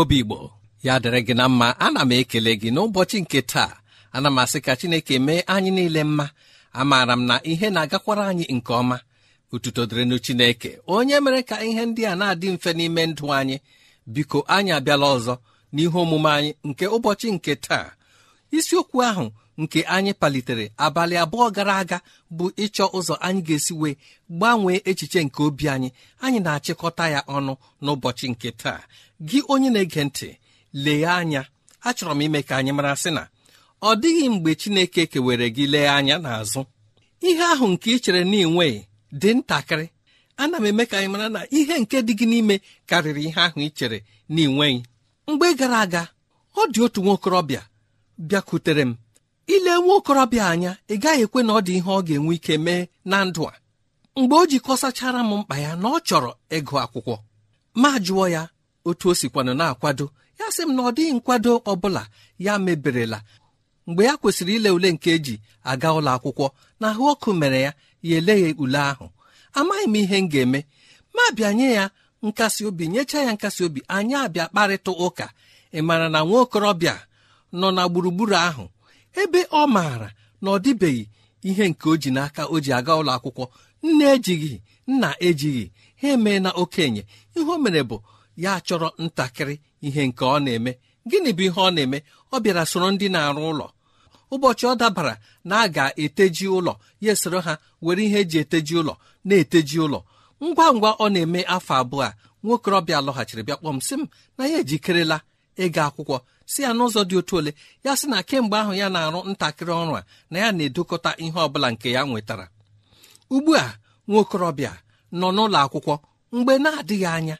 obi igbo ya dịrị gị na mma ana m ekele gị n'ụbọchị nke taa ana m asị ka chineke mee anyị niile mma amaara m na ihe na-agakwara anyị nke ọma ututo dịrịnụ chineke onye mere ka ihe ndị a na-adị mfe n'ime ndụ anyị biko anyị abịala ọzọ n'ihe omume anyị nke ụbọchị nke taa isiokwu ahụ nke anyị palitere abalị abụọ gara aga bụ ịchọ ụzọ anyị ga-esi wee gbanwee echiche nke obi anyị anyị na-achịkọta ya ọnụ n'ụbọchị nke taa gị onye na-ege ntị lee anya achọrọ m ime ka anyị mara sị na ọ dịghị mgbe Chineke kewere gị lee anya n'azụ ihe ahụ nke ị chere na ịnweghị dị ntakịrị ana m eme ka anyị mara na ihe nke dị gị n'ime karịrị ihe ahụ ị chere na mgbe gara aga ọ dị otu nwa okorobịa bịakwutere m ile nwa okorobịa anya ị gaghị ekwe na ọ dị ihe ọ ga-enwe ike mee na ndụ a mgbe o jikọsachara m mkpa ya na ọ chọrọ ịgụ akwụkwọ ma jụọ ya otu o sikwanụ na-akwado ya sị m na ọ dịghị nkwado ọ bụla ya meberela mgbe ya kwesịrị ile ule nke eji aga ụlọ akwụkwọ na ahụ ọkụ mere ya ya eleghị ule ahụ amaghị m ihe m ga-eme ma bịa nye ya nkasi obi nyechaa ya nkasi obi anyị abịa kparịta ụka ị mara na nwa okorobịa nọ na gburugburu ahụ ebe ọ maara na ọ dịbeghị ihe nke o ji n'aka o ji aga ụlọ akwụkwọ nne ejighị nna ejighị ha emee na okenye ihe o mere bụ ya chọrọ ntakịrị ihe nke ọ na-eme gịnị bụ ihe ọ na-eme ọ bịara soro ndị na-arụ ụlọ ụbọchị ọ dabara na a ga-eteji ụlọ ya esoro ha were ihe eji eteji ụlọ na-eteji ụlọ ngwa ngwa ọ na-eme afọ abụọ a nwokorobịa lọghachiri bịa kpọm m na ya ejikerela ịga akwụkwọ si ya n'ụzọ dị otu ole ya sị na kemgbe ahụ ya na-arụ ntakịrị ọrụ a na ya na-edokọta ihe ọbụla nke ya nwetara ugbu a nwaokorobịa nọ n'ụlọ akwụkwọ mgbe na-adịghị anya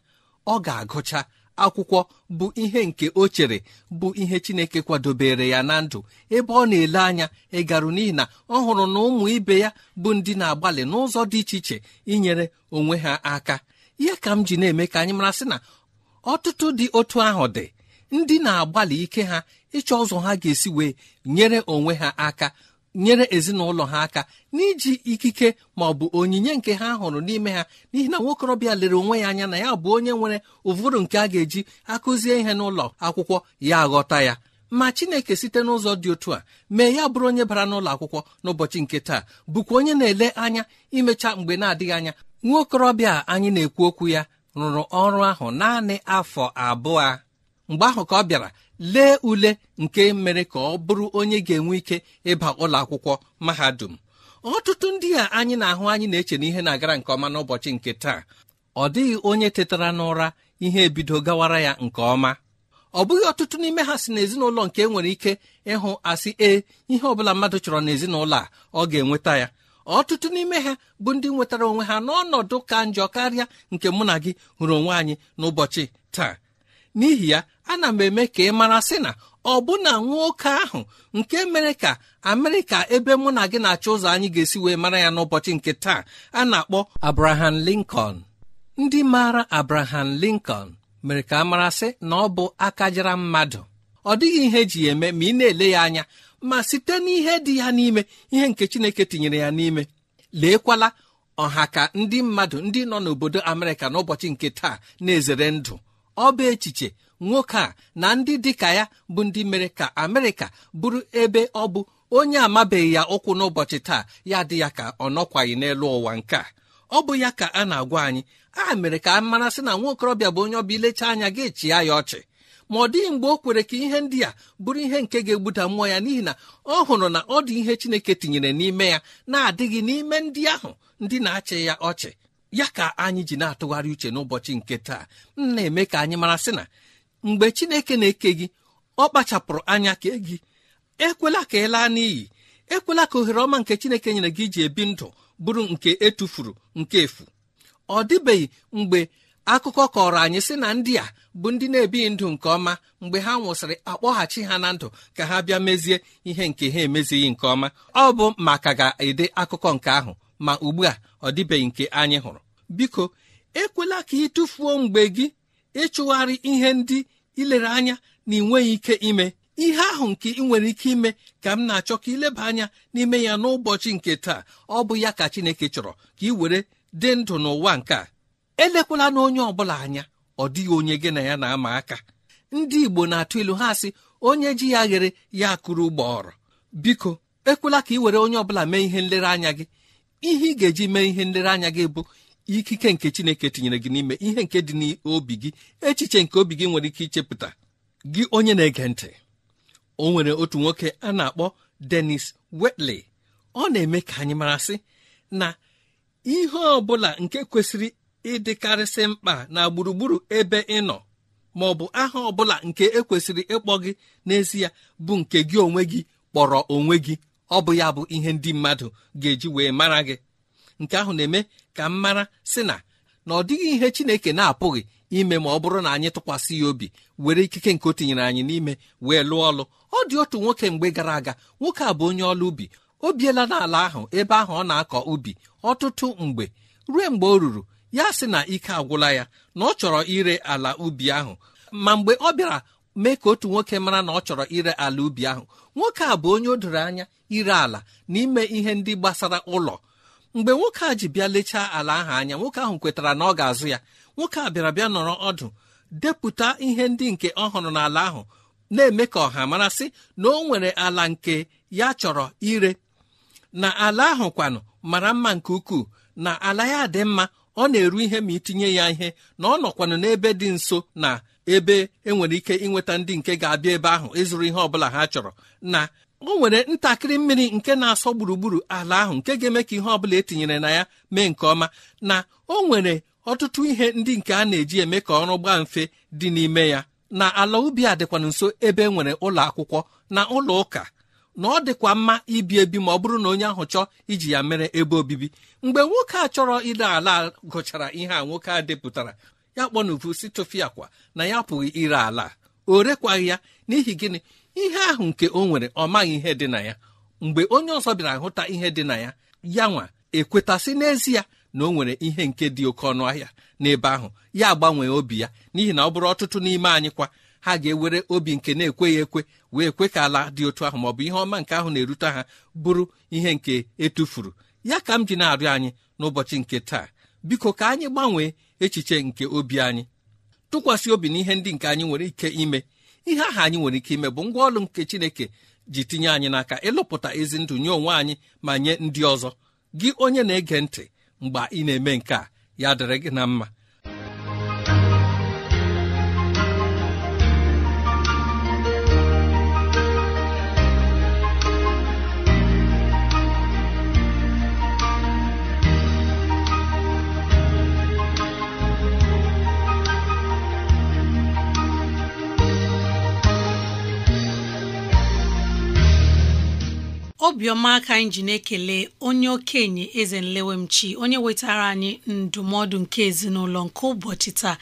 ọ ga-agụcha akwụkwọ bụ ihe nke o chere bụ ihe chineke kwadobere ya na ndụ ebe ọ na-ele anya ịgarụ n'ihi na ọ hụrụ na ụmụ ibe ya bụ ndị na-agbalị n'ụzọ dị iche iche inyere onwe ha aka ihe ka m ji na-eme ka anyị mara sị na ọtụtụ dị otu ahụ dị ndị na-agbalị ike ha ịchọ ụzọ ha ga-esi wee nyere onwe ha aka nyere ezinụlọ ha aka n'iji ikike ma ọ bụ onyinye nke ha hụrụ n'ime ha n'ihi na nwokorobịa lere onwe ya anya na ya bụ onye nwere ụvụrụ nke a ga-eji akụzie ihe n'ụlọ akwụkwọ ya aghọta ya ma chineke site n'ụzọ dị otu a mee ya bụrụ onye bara n'ụlọ akwụkwọ n'ụbọchị nke taa bụkwa onye na-ele anya imecha mgbe na-adịghị anya nwaokorobịa anyị na-ekwu okwu ya rụrụ ọrụ ahụ naanị afọ abụọ mgbe ahụ ka ọ bịara lee ule nke mere ka ọ bụrụ onye ga-enwe ike ịba ụlọ akwụkwọ mahadum ọtụtụ ndị a anyị na-ahụ anyị na-eche na ihe na-agara nke ọma n'ụbọchị nke taa ọ dịghị onye tetara n'ụra ihe ebido gawara ya nke ọma ọ bụghị ọtụtụ n'ime ha si n'ezinụlọ nke e nwere ike ịhụ asị ee ihe ọbụla mmadụ chọrọ n'ezinụlọ a ọ ga-enweta ya ọtụtụ n'ime ha bụ ndị nwetara onwe ha n'ọnọdụ ka njọ karịa nke mụ na gị hụrụ onwe anyị n'ụbọchị taa n'ihi ya ana m eme ka ị mara sị na ọbụna nwoke ahụ nke mere ka amerịka ebe mụ na gị na-achọ ụzọ anyị ga-esi wee mara ya n'ụbọchị nke taa a na-akpọ abraham lincoln ndị maara abraham lincoln mere ka a marasị na ọ bụ aka jara mmadụ ọ dịghị ihe eji eme ma ị na-ele ya anya ma site n'ihe dị ya n'ime ihe nke chineke tinyere ya n'ime leekwala ọha ka ndị mmadụ ndị nọ n'obodo amerịka n'ụbọchị nke taa na-ezere ndụ ọ bụ echiche nwoke a na ndị dịka ya bụ ndị mere ka amerịka bụrụ ebe ọ bụ onye amabeghị ya ụkwụ n'ụbọchị taa ya dị ya ka ọ nọkwaghị n'elu ụwa nke a ọ bụ ya ka a na-agwa anyị a mere ka a mara sị na nwa okorobịa bụ onye ọbịa ilecha anya gị chịa ya ọchị ma ọ dịghị mgbe o kwere ka ihe ndị a bụrụ ihe nke ga-egbuda mmụọ ya n'ihi na ọ hụrụ na ọ dị ihe chineke tinyere n'ime ya na-adịghị n'ime ndị ahụ ndị na-achị ya ọchị ya ka anyị ji na-atụgharị uche n'ụbọchị nke taa m na-eme ka anyị mara sị na mgbe chineke na-eke gị ọ kpachapụrụ anya kee gị ekwela ka ị laa n'iyi ekwela ka ohere ọma nke chineke nyere gị iji ebi ndụ bụrụ nke etufuru nke efu ọ dịbeghị mgbe akụkọ kọrọ anyị sị na ndị a bụ ndị na-ebighị ndụ nke ọma mgbe ha nwụsịrị akpọghachi ha na ndụ ka ha bịa mezie ihe nke ha emezighị nke ọma ọ bụ maka ga-ede akụkọ nke ahụ ma ugbu a ọ dịbeghị nke anyị hụrụ biko ekwela ka ị tụfuo mgbe gị ịchụgharị ihe ndị ilere anya na ị nweghị ike ime ihe ahụ nke ị nwere ike ime ka m na-achọ ka ileba anya n'ime ya n'ụbọchị nke taa ọ bụ ya ka Chineke chọrọ ka ị were dị ndụ n'ụwa nke a elekwala na onye ọbụla anya ọ dịghị onye gị na ya na-ama aka ndị Igbo na-atụ ilu ha sị onye ji ya ghere ya kụrụ ụgbọọrọ biko ekwela ka ị were onye ọbụla mee ihe nlereanya gị ihe ị ga-eji mee ihe nlereanya gị bụ ikike nke chineke tinyere gị n'ime ihe nke dị n'obi gị echiche nke obi gị nwere ike ichepụta gị onye na-ege ntị o nwere otu nwoke a na-akpọ Dennis Wetley ọ na-eme ka anyị marasị na ihe ọ bụla nke kwesịrị ịdịkarịsị mkpa na gburugburu ebe ị nọ ma ọ bụ aha ọ bụla nke ekwesịrị ịkpọ gị n'ezie bụ nke gị onwe gị kpọrọ onwe gị ọ bụ ya bụ ihe ndị mmadụ ga-eji wee mara gị nke ahụ na-eme ka m mara sị na na ọ dịghị ihe chineke na-apụghị ime ma ọ bụrụ na anyị tụkwasị ya obi were ikike nke o tinyere anyị n'ime wee lụọ ọlụ ọ dị otu nwoke mgbe gara aga nwoke a bụ onye ọlụ ubi o biela n'ala ahụ ebe ahụ ọ na-akọ ubi ọtụtụ mgbe ruo mgbe o ruru ya sị na ike agwụla ya na ọ chọrọ ire ala ubi ahụ ma mgbe ọ bịara mee ka otu nwoke mara na ọ chọrọ ire ala ubi ahụ nwoke a bụ onye o doro anya ire ala n'ime ihe ndị gbasara ụlọ mgbe nwoke a ji bịa lechaa ala ahụ anya nwoke ahụ kwetara na ọ ga-azụ ya nwoke a bịara bịa nọrọ ọdụ depụta ihe ndị nke ọ hụrụ n'ala ahụ na-eme ka ọha marasị na o nwere ala nke ya chọrọ ire na ala ahụ kwanụ mara mma nke ukwuu na ala ya dị mma ọ na-eru ihe ma itinye ya ihe na ọ nọkwanụ n'ebe dị nso na ebe enwere ike inweta ndị nke ga-abịa ebe ahụ ịzụrụ ihe ọbụla ha chọrọ na o nwere ntakịrị mmiri nke na-asọ gburugburu ala ahụ nke ga-eme ka ihe ọbụla etinyere na ya mee nke ọma na o nwere ọtụtụ ihe ndị nke a na-eji eme ka ọrụ gbaa mfe dị n'ime ya na ala ubi a dịkwa nso ebe e nwere ụlọ akwụkwọ na ụlọ ụka na ọ dịkwa mma ibi ebi ma ọ bụrụ na onye ahụ chọọ iji ya mere ebe obibi mgbe nwoke a chọrọ ire ala gụchara ihe a nwoke a depụtara ya kpọnuvu si tụfịa akwa na ya pụghị ire ala o rekwaghị ya n'ihi gịnị ihe ahụ nke o nwere ọ maghị ihe dị na ya mgbe onye ọzọ bịara hụta ihe dị na ya ya nwa ekwetasị n'ezie na o nwere ihe nke dị oke ọnụ ahịa n'ebe ahụ ya gbanwee obi ya n'ihi na ọ bụrụ ọtụtụ n'ime anyị kwa ha ga-ewere obi nke na-ekweghị ekwe wee kwe ka ala dị otu ahụ ma ọ bụ ihe ọma nke ahụ na-erute ha bụrụ ihe nke etufuru ya ka m ji na-arịọ anyị n'ụbọchị nke taa biko ka anyị gbanwee echiche nke obi anyị tụkwasị obi ihe ndị nke anyị nwere ike ime ihe aha anyị nwere ike ime bụ ngwa ọlụ nke chineke ji tinye anyị n'aka ịlụpụta ezi ndụ nye onwe anyị ma nye ndị ọzọ gị onye na-ege ntị mgbe ị na-eme nke a ya dịrị gị na mma obiọma aka anyị ji na-ekele onye okenye eze nlewemchi onye wetara anyị ndụmọdụ nke ezinụlọ nke ụbọchị taa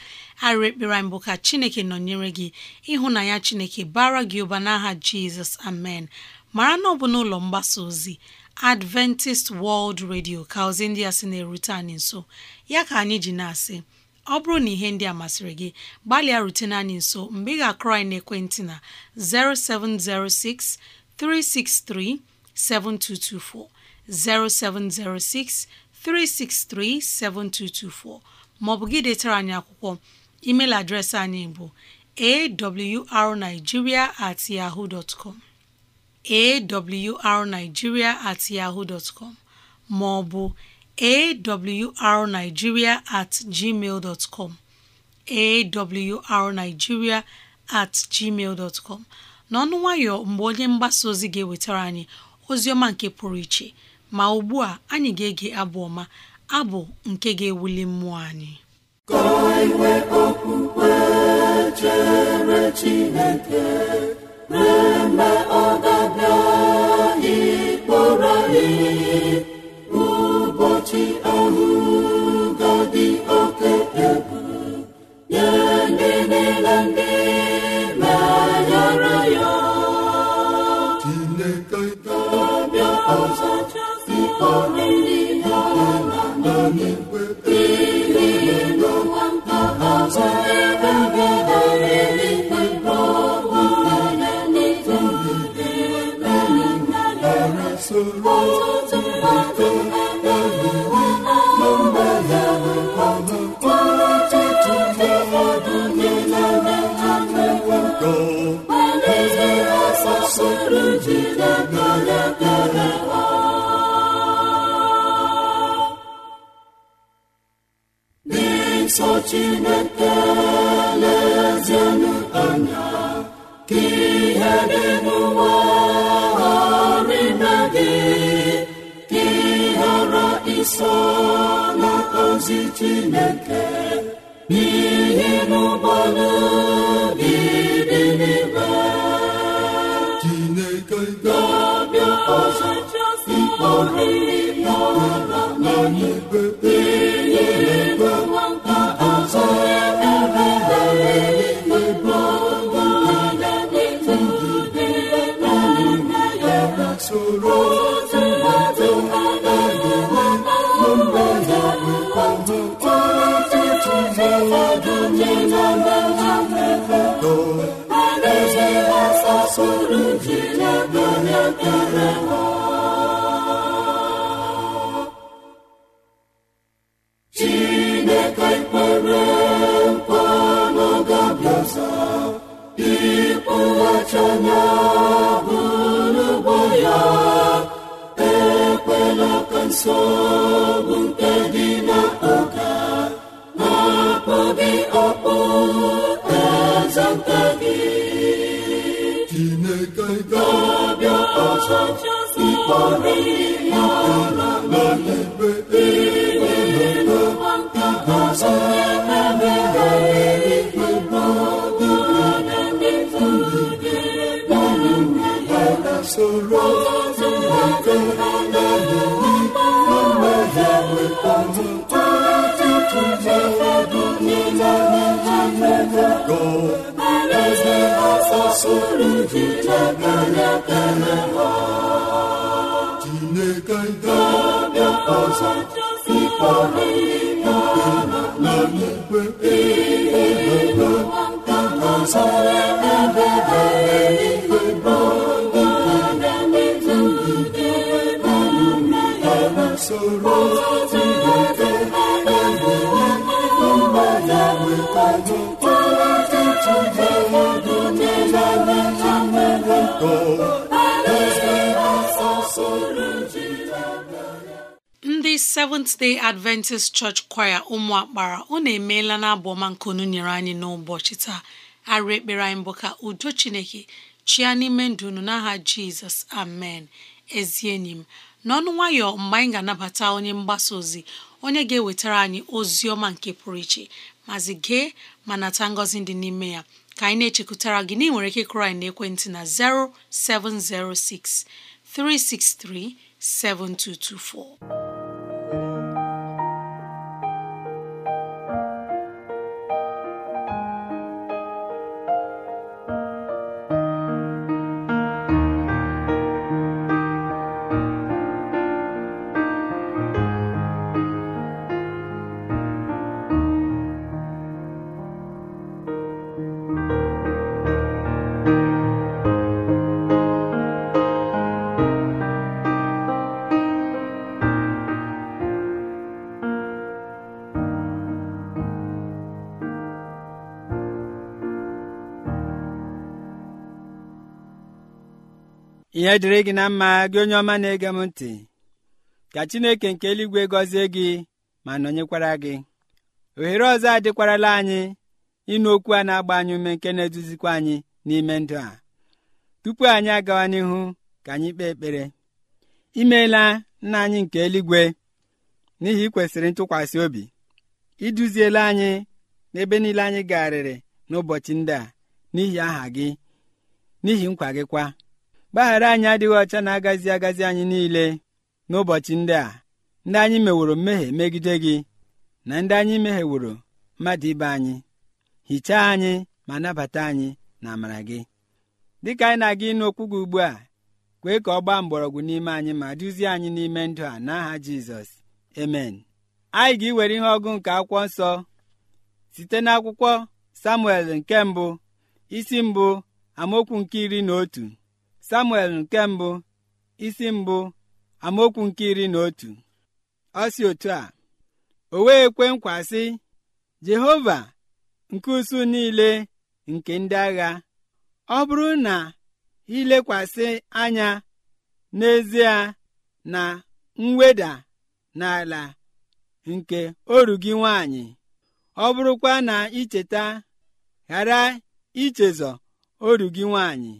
arịrị ekpere anyị bụ ka chineke nọnyere gị ịhụnanya chineke bara gị ụba n'aha jizọs amen mara na ọ bụ n'ụlọ mgbasa ozi adventist world radio ka ozi ndị a sị na-erute anyị nso ya ka anyị ji na-asị ọ bụrụ na ihe ndị a masịrị gị gbalịa rutene anyị nso mgbe ị ga-akụrọ anyị n'ekwentị na 0706 363 7224 0706 363 7224 maọbụ gị detara anyị akwụkwọ email adreesị anyị bụ awrnigeria at yahoo dot com awrnigeria at yahoo dot maọbụ awrnigeria at gmail dot com at gmail dot n'ọnụ nwayọ mgbe onye mgbasa ozi ga-ewetara anyị ozioma nke pụrụ iche ma ugbu a anyị ga-ege abụ ọma abụ nke ga-ewuli mmụọ anyị e ụbọchị ga-adị oke egwu nye ndị niile ndị Amen. soro jide aka ya kere soro gị na-abịa ya ere ha ga-abịa ọzọ ikpe ahụ ikpe na ikpe ikpe ọzọ ebebere ikpe ọdụdụ ikpe na usoro Seventh Day Adventist Church Choir ụmụakpara unu emeela na abụọma nke unu nyere anyị n'ụbọchị taa arụ ekpere anyị bụ ka udo Chineke chia n'ime ndụ unu n'aha Jizọs amen ezi enyi m n'ọnụ nwayọ mgbe anyị ga-anabata onye mgbasa ozi onye ga-ewetara anyị ozi ọma nke pụrụ iche mazi gee ma nata ngọzi dị n'ime ya ka anyị na-echekwutara gị na ị nwere ike kụrụ anyị n'ekwentị na 0706 363 7224 ihe dịrị gị na mma gị onye ọma na-ege m ntị ka chineke nke eluigwe gọzie gị ma nọnyekwara gị ohere ọzọ adịkwarala anyị ịnụ okwu a na-agba anyị ume nke na-eduzikwa anyị n'ime ndụ a tupu anyị agawa n'ihu ka anyị kpee ekpere imeela nna anyị nke eluigwe n'ihi ikwesịrị ntụkwasị obi iduziela anyị n'ebe niile anyị garịrị n'ụbọchị ndị a n'ihi aha gị n'ihi nkwa gị kwa mgbaghara anyị adịghị ọcha na-agazi agazi anyị niile n'ụbọchị ndị a ndị anyị meworo mmehie megide gị na ndị anyị mehieworo mmadụ ibe anyị hichaa anyị ma nabata anyị na amara gị dịka anyị na-aga ịnụ okwu gị ugbu a kwee ka ọ gbaa mgbọrọgwụ n'ime anyị ma duzie anyị n'ime ndụ a n'aha jizọs emen anyị ga-iwere ihe ọgụ nke akwụkwọ nsọ site n'akwụkwọ samuel nke mbụ isi mbụ amaokwu nke iri na otu samuel nke mbụ isi mbụ amaokwu nke iri na otu ọ si otu a o wee kwe nkwa sị jehova nke usu niile nke ndị agha ọ bụrụ na ilekwasị anya n'ezie na mweda n'ala nke oru gị nwanyị ọ bụrụkwa na icheta ghara ichezọ oru gị nwanyị.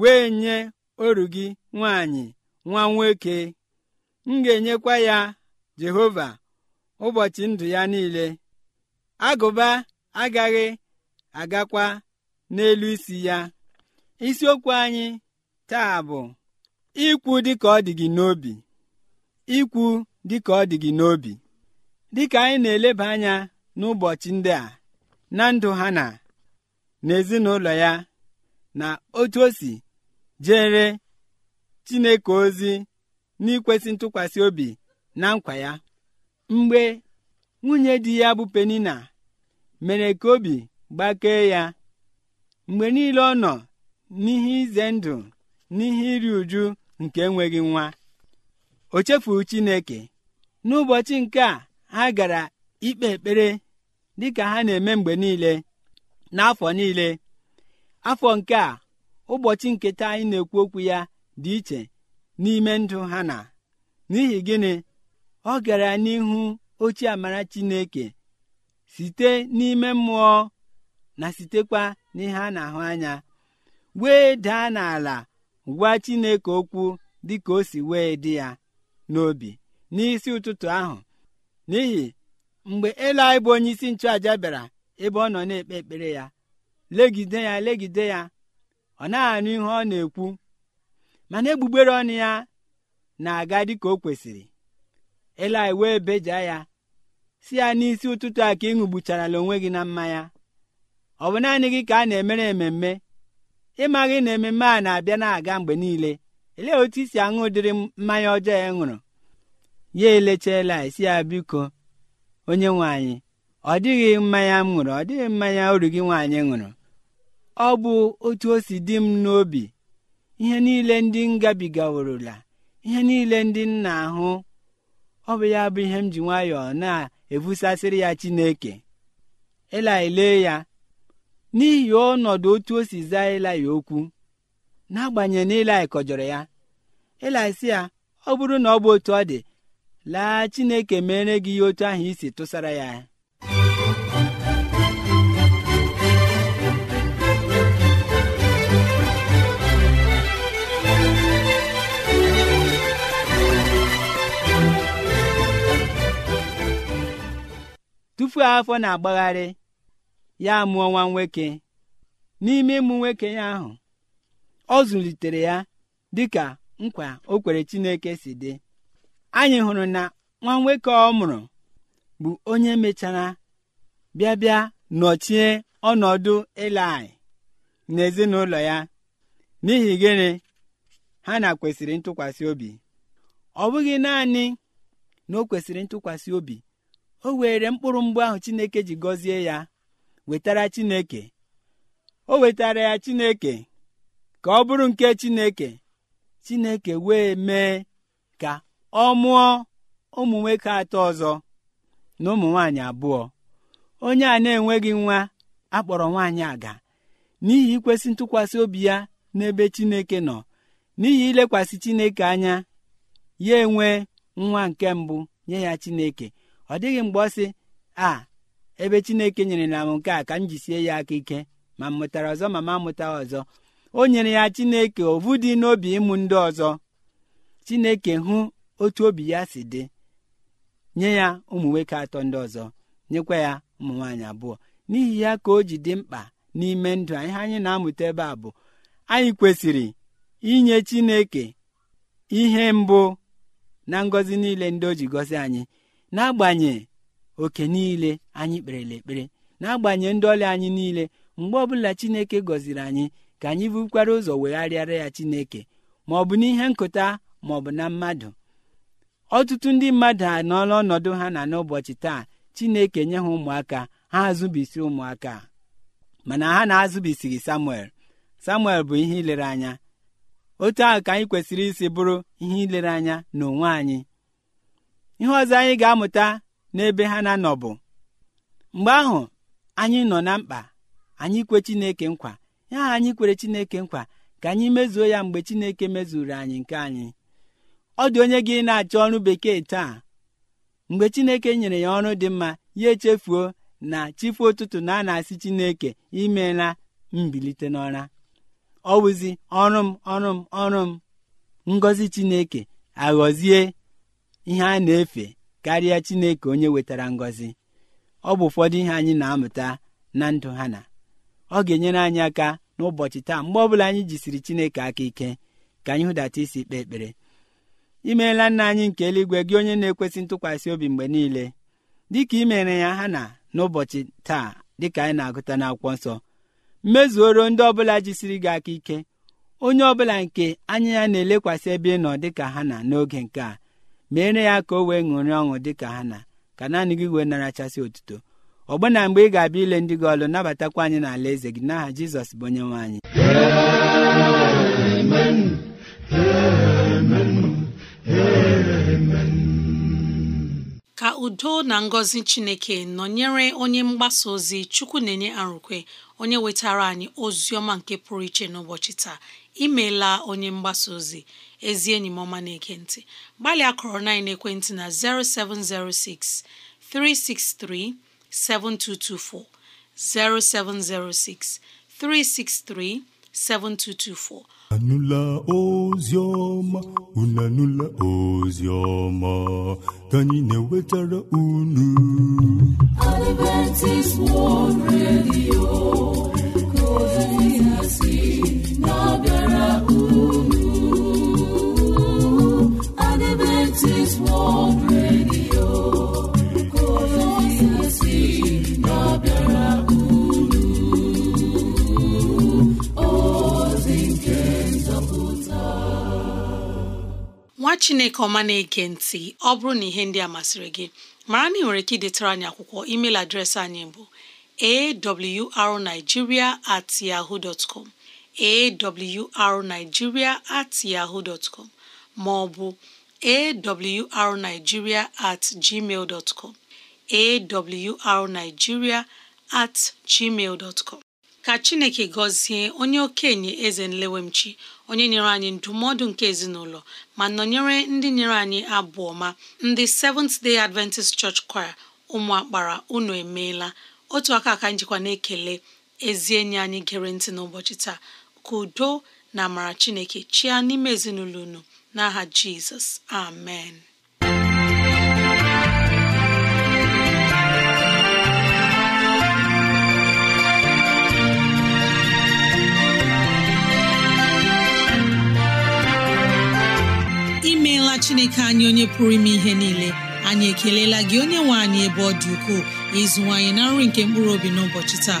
wee nye oru gị nwaanyị nwa nwoke m ga-enyekwa ya jehova ụbọchị ndụ ya niile agụba agaghị agakwa n'elu isi ya isiokwu anyị taa bụ ikwu dịka ọ dị gị n'obi ikwu dịka ọ dị gị n'obi dịka anyị na-eleba anya n'ụbọchị ndị a na ndụ ha na n'ezinụlọ ya na otu o si jere chineke ozi n'ikwesị ntụkwasị obi na nkwa ya mgbe nwunye di ya bụ penina mere ka obi gbakee ya mgbe niile ọ nọ n'ihe ize ndụ n'ihe iri uju nke enweghị nwa o chefuru chineke n'ụbọchị nke a ha gara ikpe ekpere dịka ha na-eme mgbe niile n'afọ niile afọ nke a ụbọchị nketa anyị na-ekwu okwu ya dị iche n'ime ndụ ha na n'ihi gịnị ọ gara n'ihu ochie amara Chineke site n'ime mmụọ na sitekwa n'ihe a na-ahụ anya wee daa n'ala gwa Chineke okwu dị ka o si wee dị ya n'obi n'isi ụtụtụ ahụ n'ihi mgbe anyị bụ onye isi nchụaja bịara ebe ọ nọ na-ekpe ekpere ya legide ya legide ya ọ na-anụ ihe ọ na-ekwu mana egbugbere ọnụ ya na-aga dịka o kwesịrị Eli wee beja ya si ya n'isi ụtụtụ a ka ị ṅụgbucharala onwe gị na mmanya ọ bụ naanị gị ka a na-emere ememme ịmaghị na ememme a na-abịa na-aga mgbe niile elee otu isi aṅụ ụdịrị mmanya ọjọọ ya ṅụrụ ya elecha Eli si ya biko onye nwe ọ dịghị mmanya m ṅụrụ ọ dịghị mmanya uru gị nwaanyị ṅụrụ ọ bụ otu o si dị m n'obi ihe niile ndị m gabigaworola ihe niile ndị nna ahụ ọ bụ ya bụ ihe m ji nwayọọ na-ebusasịrị ya Chineke ele ya n'ihi ọnọdụ otu o si zaa Elai okwu n'agbanyeghị na Elai kọjọrọ ya Elai ya ọ bụrụ na ọ bụ otu ọ dị laa Chineke mere gị ihe otu ahụ isi tụsara ya ofu afọ na-agbagharị ya mụọ nwa nwoke n'ime ịmụ nwoke ya ahụ ọ zụlitere ya dịka nkwa o kwere Chineke si dị anyị hụrụ na nwa nwoke ọ mụrụ bụ onye mechara bịa bịa nọchie ọnọdụ na n'ezinụlọ ya n'ihi gịnị ha na kwesịrị ntụkwasị obi ọ bụghị naanị na o kwesịrị ntụkwasị obi o were mkpụrụ mgbe ahụ chineke ji gọzie ya wetara chineke o wetara ya chineke ka ọ bụrụ nke chineke chineke wee mee ka ọ mụọ ụmụ nwoke atọ ọzọ na ụmụ nwaanyị abụọ onye a na-enweghị nwa akpọrọ nwaanyị aga n'ihi ikwesị ntụkwasị obi ya n'ebe chineke nọ n'ihi ilekwasị chineke anya ya enwe nwa nke mbụ nye ya chineke ọ dịghị mgbe ọ sị a ebe chineke nyere na m nke a ka m jisie ya aka ike ma m mụtara ọzọ ma m amụta ọzọ o nyere ya chineke ovu dị n'obi ịmụ ndị ọzọ chineke hụ otu obi ya si dị nye ya ụmụ nwoke atọ ndị ọzọ nyekwa ya ụmụ nwaanyị abụọ n'ihi ya ka o ji dị mkpa n'ime ndụ ihe anyị na-amụta ebe a bụ anyị kwesịrị inye chineke ihe mbụ na ngọzi niile ndị o ji gọzi anyị n'agbanye oke niile anyị kperela ekpere n'agbanye ndị ọrịa anyị niile mgbe ọbụla chineke gọziri anyị ka anyị bukwara ụzọ wegharịara ya chineke ma ọ bụ n'ihe nkụta ma ọ bụ na mmadụ ọtụtụ ndị mmadụ anọọla ọnọdụ ha na n'ụbọchị taa chineke nye ha ụmụaka ha azụbisi ụmụaka mana ha na-azụbisighị samuel samuel bụ ihe ilere anya otu ahụ ka anyị kwesịrị isi bụrụ ihe ilere anya n'onwe anyị ihe ọzọ anyị ga-amụta n'ebe ha na-anọ bụ mgbe ahụ anyị nọ na mkpa anyị kwe Chineke nkwa ya anyị kwere Chineke nkwa ka anyị mezuo ya mgbe Chineke mezuru anyị nke anyị ọ dị onye gị na-achọ ọrụ bekee taa mgbe Chineke nyere ya ọrụ dị mma ya echefuo na chifu ụtụtụ na a na-asị Chineke imela mbilite n'ọra ọ wụzi ọrụ m ọrụ m ọrụ m ngọzi Chineke aghọzie ihe a na-efe karịa Chineke onye wetara ngọzi ọ bụ ụfọdụ ihe anyị na-amụta na ndụ ha na ọ ga-enyere anyị aka n'ụbọchị taa mgbe ọbụla anyị jisiri Chineke aka ike ka anyị hụdata isi kpee ekpere imeela nna anyị nke eluigwe gị onye na-ekwesị ntụkwasị obi mgbe niile dịka i mere ya ha na n'ụbọchị taa dịka anyị na-agụta na-akwọ nsọ mmezuoro ndị ọbụla jisiri gị aka ike onye ọbụla nke anya ya na-elekwasị ebe ị nọ dịka ha na n'oge nke a meere ya ka o wee ṅụrị ọṅụ dị ka ha na ka naanị gị wee narachasị otuto ọgbụna mgbe ị ga-abịa ile ndị gị ọlụ nabatakwa anyị n'ala eze gị n'aha jizọs bụ onye nwe anyị ka udo na ngọzi chineke nọnyere onye mgbasa ozi chukwu na-enye arụkwe onye wetara anyị ozi ọma nke pụrụ iche n'ụbọchị taa imeela onye mgbasa ozi ezi enyi m ọma na-ege ntị gbalịa kọrọ na ekwentị na 0706 363 7224 0706 363 7224 anụla oziọma unu anụla oziọma ka anyị na-ewetara unu Adventist World Radio ka ozi na-abịa Nwa chineke ọma na-ege ntị ọ bụrụ na ihe ndị a masịrị gị mara na ị nwere ike idetara anyị akwụkwọ email adreesị anyị bụ arigiria at at com ma ọ bụ awrnigeria at gmail dot com at gmail dot com ka chineke gọzie onye okenye eze nlewemchi onye nyere anyị ndụmọdụ nke ezinụlọ ma nọnyere ndị nyere anyị abụọ ma ndị Seventh Day Adventist Church Choir ụmụ akpara unu emeela otu aka aka njikwa na-ekele ezi enyi anyị gere ntị n'ụbọchị taa ka udo na amara chineke chịa n'ime ezinụlọ unu n'aha jizọs amen imeela chineke anyị onye pụrụ ime ihe niile anyị ekelela gị onye nwe anyị ebe ọ dị ukwuu ịzụwanyị na nri nke mkpụrụ obi n'ụbọchị taa